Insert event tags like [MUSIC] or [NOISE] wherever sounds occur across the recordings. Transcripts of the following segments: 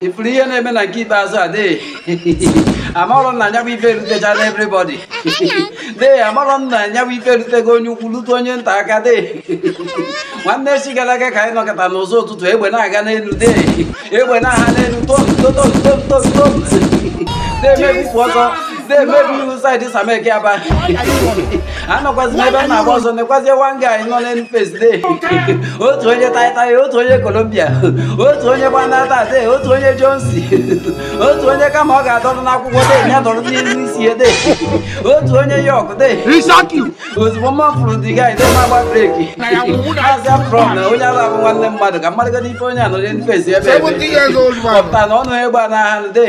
ifuru ihe na-eme na nke ikpeazụ a dee amarọ na anyabụ ife erutechana everybody dee amarọ na anyabụ ife erutego onye ukwu lute onye nta aka dee nwanne si gara aga ka anyị nọkọta n'ụzọ ụtụtụ egbe na-aga n'elu dee egbe na-aha n'elu tom tom tom tom tom dee ọzọ the baby who side is aba anọkwazi ebe m na-agba ọzọ nekwazie one guy nọ na otu onye taịtaị otu onye Colombia otu onye gbanata otu onye Jonsi otu onye kama ọ ga adọrụ n'akwụkwọ de ya dọrọ n'isi ede otu onye York de ozugbo mma fụrụ dị guy de magba breki azia from na onye ala abụ nwanne mmadụ ka mmadụ gada ife onye anọrọ na face ebe ọpụta na ọnụ egbe naha de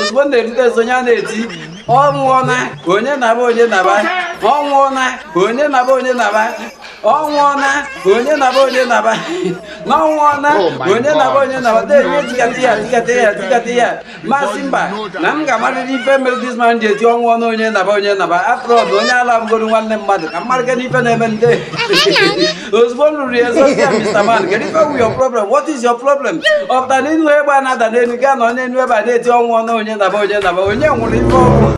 ozugbo na-erute onye a na-eti Mm-hmm. ọ onye naba onye naba ọ onye na ọ nwụọna onye naba onye naba na-enye tikata oh ya tikata ya ya masị mba na m ga-amarịrị ife mere disman ji eti ọnwụ ọnụ onye naba onye naba afrọd onye ala nwanne mmadụ ka mmadụ gana ife na-eme nde [LAUGHS] ozugbo m ruru ya mr man what is your problem ọpụta na egbe a na-ada n'elu gaa na onye enu ebe a na-eti onye naba onye naba onye nwụrụ ife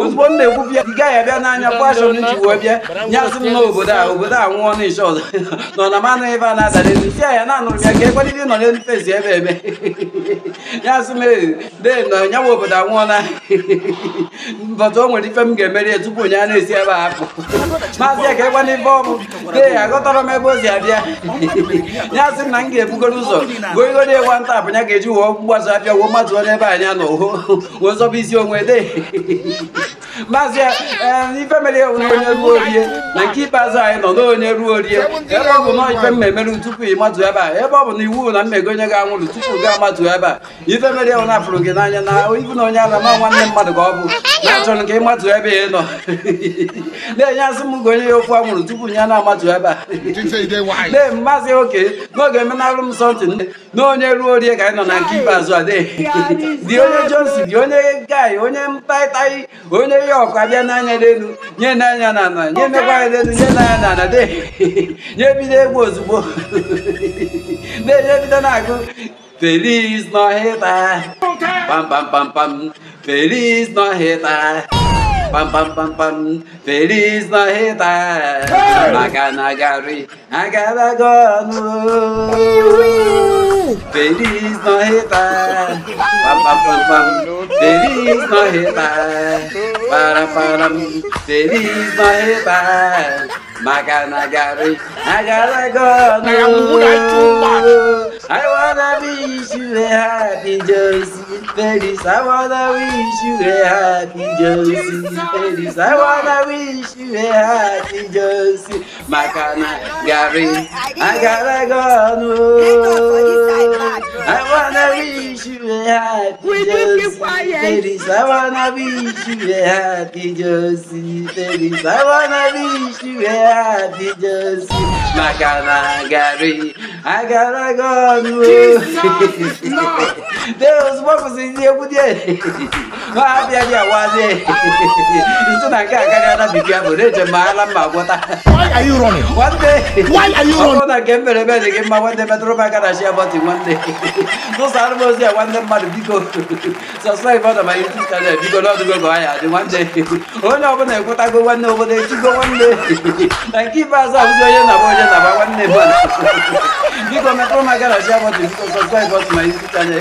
ozugbo m na-ekwu bịa ị gaghị abịa n'anya fashion ji wee bịa nyasị m na obodo a obodo a nwụọ ọzọ [LAUGHS] nọ na manụ ebe a na-ada n'elu tia ya na-anụrụ ya ka e ebe [LAUGHS] obodo anwụọ na [LAUGHS] nwere ife m ga-emeri tupu onye a na-esi ebe a apụ maazị ya ka n'ife ọbụ agọtara m ebe ozi abịa na m ga-ebugoro ụzọ nta ga-eji wụọ abịa wuo mmadụ ebe is your way [LAUGHS] there. maazị ife mere wụ na onye ruo orie na nke ikpeazụ anyị nọ na onye ruo orie ebe ọ bụ na ife mmemerụ tupu ị matụ ebe a ebe ọ bụ na iwu na mmego onye ga-anwụrụ tupu gị ebe a ife mere wụ na fụrụ gị n'anya na ibu na onye ala ma nwanne mmadụ ka ọ bụ na achọrọ ka ị nọ [LAUGHS] enye asị m gị ya okwu anwụrụ tupu ya ebe a [LAUGHS] maazị oke ruo orie ka nọ na nke ikpeazụ a [LAUGHS] dị onye jonsi dị onye onye ihe ọkwa bịa n'anya n'elu nye n'anya na ala nye n'ekwa anya n'elu nye n'anya na ala nye bido egwu ozugbo na-enye feliz nọhịta pampampampam feliz nọhịta pam pam pam pam feliz nọhịta maka na feliz nọhịta Feliz Navidad, para para Feliz Navidad, Maganagari, Nagaragona. I wanna wish you a happy Josie Feliz. I wanna wish you a happy Josie Feliz. I wanna wish you a happy Josie Maganagari, Nagaragona wanna wish you a happy Will you eh? I wanna wish you a happy Josie. I wanna wish you a happy Josie. I gotta go. [LAUGHS] Dero ozugbo kwụsịrị egwu dị eri. Ma ha bịa bịa wazi eri. Isi na nke a karịa na bibia bụ na-eje ma ala mma gwọta. Why are you running? One day. Why are you [LAUGHS] running? Ọ na nke mere ebe dị gị mma nwanne metụrụ m aka na shia bọtị nwanne. N'ụzọ arụmozi a nwanne mmadụ biko. Sọsọrọ ọdọ ma YouTube chanel biko n'ọdụgo gọ ya dị nwanne. Onye ọbụla ekwetago nwanne obodo echigo nwanne. Na nke ikpeazụ abụzi onye na-agba onye na-agba nwanne mmadụ. Biko metụrụ m aka na shia bọtị biko sọsọrọ ọdọ ma YouTube chanel.